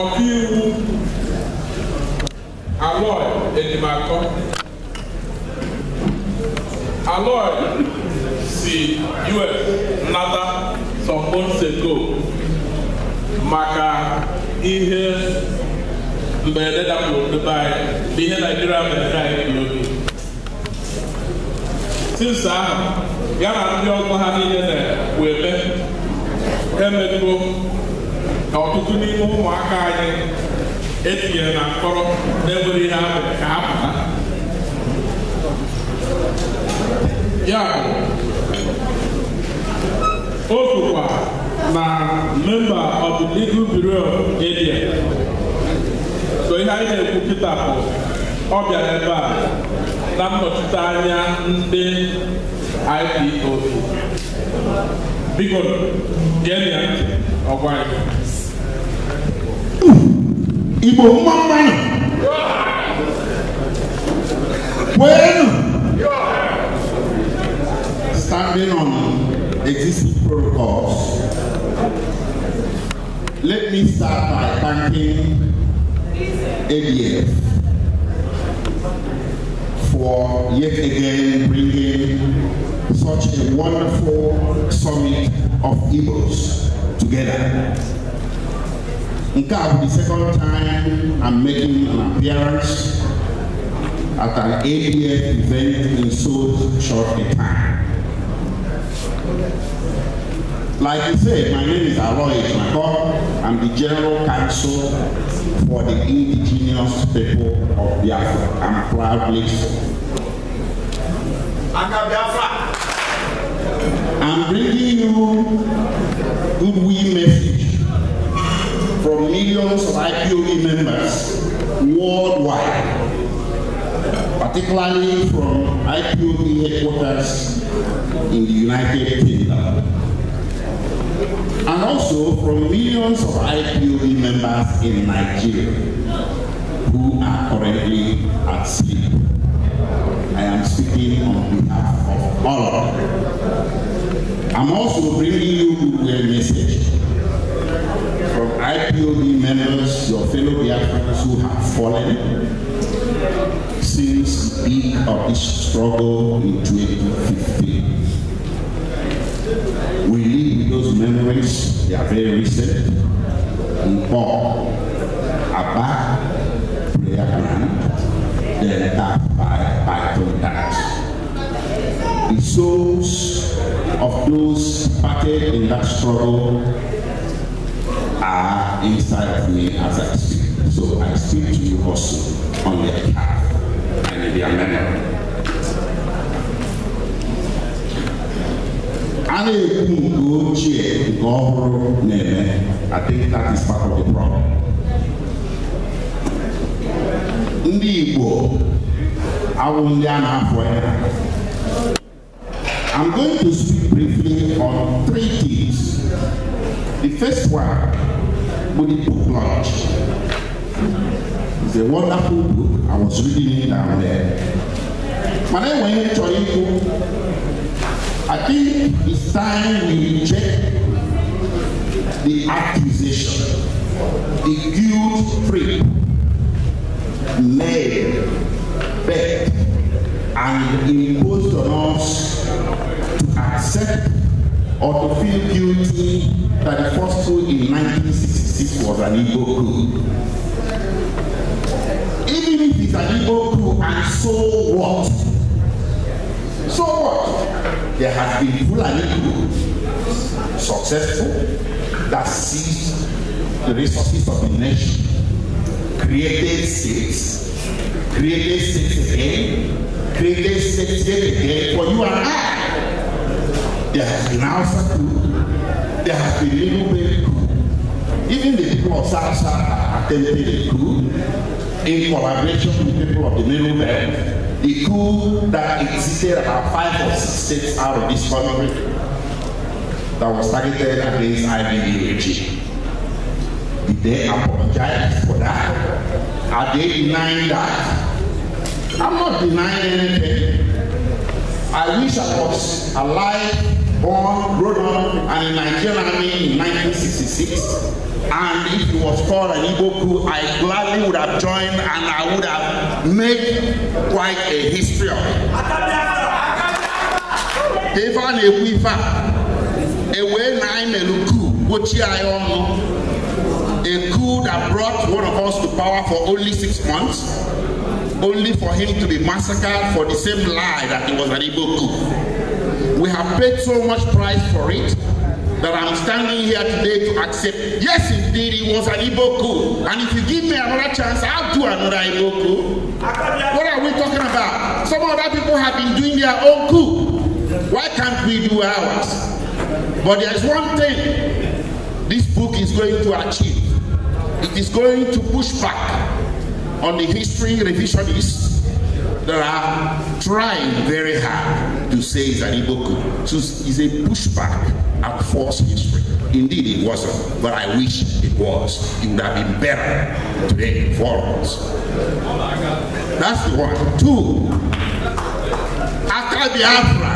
ọkaiwu Aloy Ejimakor Aloy si US nata some maka ihe mberede dapụrụ n'ebe anyị ihe Naijiria mere anyị n'obi tinsa ahụ ya na ndị ọzọ ha niile na-eme emetuo na ọtụtụ n'ime ụmụaka anyị etinyere na mkpọrọ na-enwere ihe ahụ ka ha ya o kwukwa na memba of the legal bureau area so ihe anyị na-ekwu kịta bụ ọ bịara ebe a na nnọchite anya ndị ipo biko gee ya ntị igbo nwa mmanụ kweenu standing on existing protocols let me start by thanking ADF for yet again bringing such a wonderful summit of Igbos together. Nkab, the second time I'm making an appearance at an APF event in so short a time. Like I said, my name is Aloy Makor. I'm the General Counsel for the Indigenous People of Biafra. I'm proudly so. Aka Biafra! I'm bringing you goodwill message millions of IPOE members worldwide, particularly from IPOE headquarters in the United Kingdom, and also from millions of IPOE members in Nigeria who are currently at sea. in Paul about prayer ground, then backed by Bible The souls of those packed in that struggle are inside me as I speak. So I speak to you also on their behalf and in their memory. na-ekwu nke ochie nke ọhụrụ na-eme I think that is part of the problem. ndị Igbo awụ ndị a na-afọ ya I'm going to speak briefly on three things. The first one bụ the book launch. It's a wonderful book. I was reading it down there. mana enweghị chọrọ ikwu I think it's time we reject the accusation, the guilt trip, led, bet, and imposed on us to accept or to feel guilty that the first coup in 1966 was an evil coup. Even if it's an evil coup, and so what? So what? There has been Fulani group, successful, that seized the resources of the nation, created states, created states again, created states yet again for you and I. There has been Hausa group, there has been Little bit group, even the people of South South attempted a group in collaboration with people of the Middle Belt the coup that existed about five or six states out of this country that was targeted against IBD regime. Did they apologize for that? Are they denying that? I'm not denying anything. I wish I was alive, born, grown up, and in Nigerian army in 1966. And if he was called an Iboku, I gladly would have joined and I would have made quite a history of it. a a, coup, A coup that brought one of us to power for only six months, only for him to be massacred for the same lie that he was an Igbo coup. We have paid so much price for it. that I'm standing here today to accept. Yes, indeed, it was an Igbo coup. And if you give me another chance, I'll do another Igbo coup. What are we talking about? Some other people have been doing their own coup. Why can't we do ours? But there's one thing this book is going to achieve. It is going to push back on the history revisionists that are trying very hard to say it's an Iboku. So it's a pushback at false history. Indeed, it wasn't, but I wish it was. It would have been better today for us. That's the one. Two, Accra Biafra.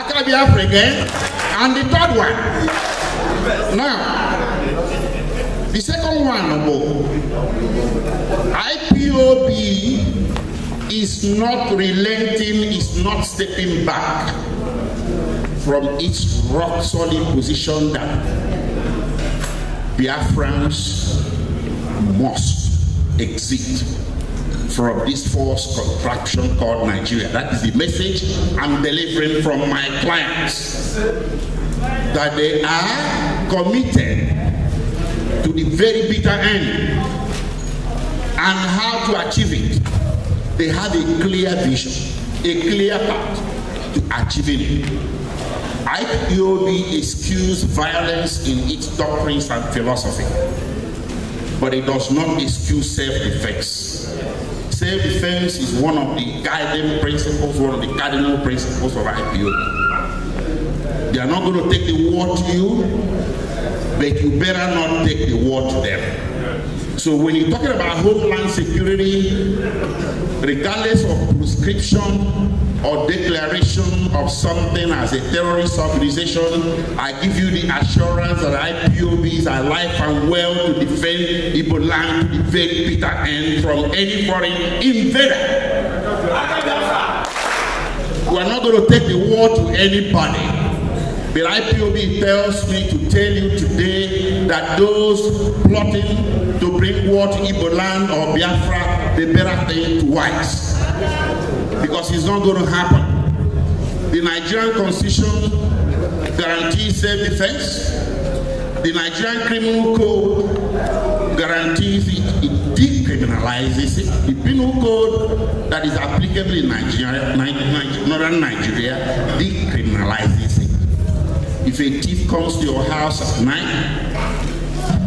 Accra Biafra again. And the third one. Now, the second one, IPOB is not relenting, is not stepping back from its rock solid position that Biafrans must exit from this false contraption called Nigeria. That is the message I'm delivering from my clients. That they are committed to the very bitter end and how to achieve it. They have a clear vision, a clear path to achieving it. IPOB excused violence in its doctrines and philosophy, but it does not excuse self-defense. Self-defense is one of the guiding principles, one of the cardinal principles of IPOB. They are not going to take the war to you, but you better not take the war to them. So when you're talking about homeland security, regardless of prescription or declaration of something as a terrorist organization, I give you the assurance that IPOBs are alive and well to defend Ibo land, to defend Peter N from any foreign invader. We are not going to take the war to anybody. But IPOB tells me to tell you today that those plotting to bring war to Iboland or Biafra, they better think twice. Because it's not going to happen. The Nigerian constitution guarantees self-defense. The Nigerian criminal code guarantees it, it decriminalizes it. The penal code that is applicable in Nigeria, northern Nigeria, decriminalizes if a thief comes to your house at night,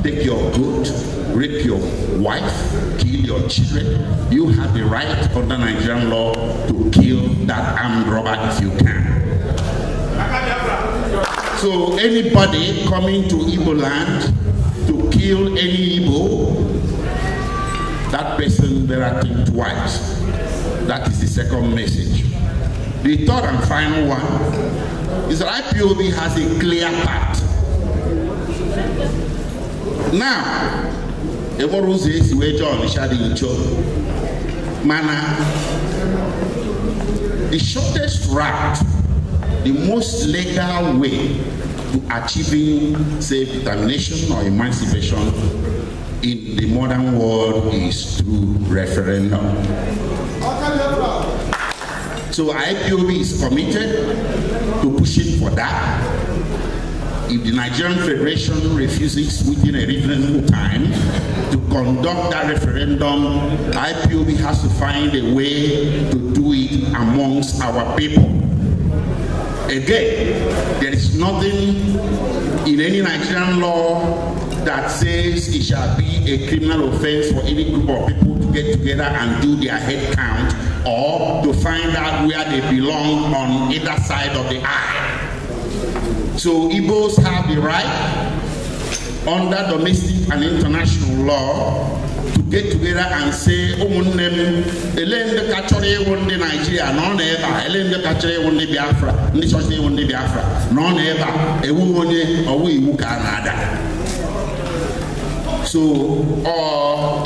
take your goat, rape your wife, kill your children, you have the right under Nigerian law to kill that armed robber if you can. So anybody coming to Igbo land to kill any Igbo, that person better think twice. That is the second message. The third and final one is that IPOB has a clear path. Now, enwere ụzọ esi wee jee Ọnịsha dị mana the shortest route the most legal way to achieving self-determination or emancipation in the modern world is through referendum. So IPOB is committed to pushing for that. If the Nigerian Federation refuses within a reasonable time to conduct that referendum, IPOB has to find a way to do it amongst our people. Again, there is nothing in any Nigerian law that says it shall be a criminal offense for any group of people to get together and do their head count or to find out where they belong on either side of the eye. So Igbos have the right under domestic and international law to get together and say ụmụnne m ele ndị ka chọrọ ịwụ ndị naijiria na ọ na ele chọrọ ịwụ ndị biafra ndị chọrọ ịwụ ndị biafra na ọ na a ewu onye ọwụ iwu ka a na-ada so ọ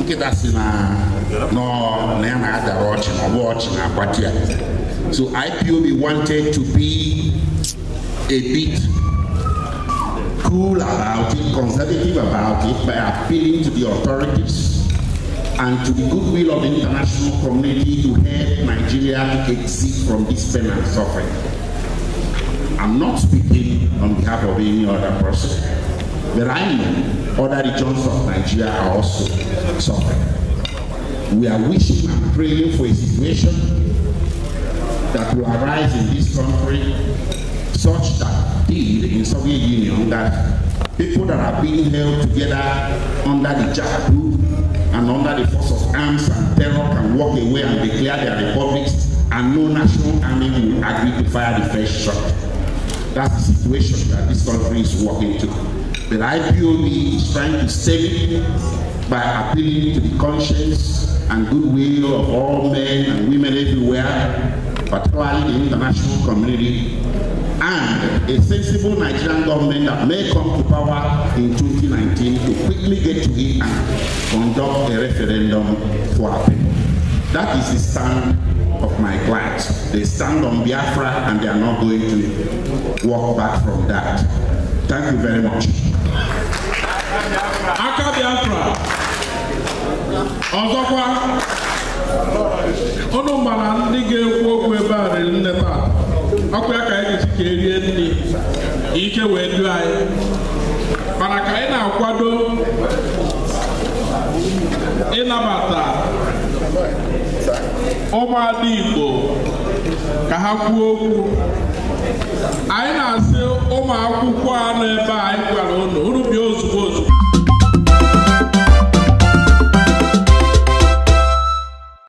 nkịta si na No, I had a watch, watching watch, watching a party. So IPOB wanted to be a bit cool about it, conservative about it, by appealing to the authorities and to the goodwill of the international community to help Nigeria exit from this pain and suffering. I'm not speaking on behalf of any other person, but I know other regions of Nigeria are also suffering we are wishing and praying for a situation that will arise in this country such that did in Soviet Union that people that are being held together under the jackboot and under the force of arms and terror can walk away and declare their republics and no national army will agree to fire the first shot. That's the situation that this country is walking to. The IPOB is trying to save it by appealing to the conscience and goodwill of all men and women everywhere, particularly the international community, and a sensible Nigerian government that may come to power in 2019 to quickly get to it and conduct a referendum for our people. That is the stand of my clients. They stand on Biafra and they are not going to walk back from that. Thank you very much. Aka Biafra. ọzọkwa ụnụ mana ndị ga-ekwu okwu ebe a riri nne taa ọkụ ya ka anyị ga-esi ka erie nri ike wee duo anyị mana ka anyị na-akwado ịnabata ụmụada Igbo ka ha kwuo okwu anyị na-asị ụmụakwụkwọ akwụkwọ a ebe a anyị gwara ụnụ unu ozugbo ozugbo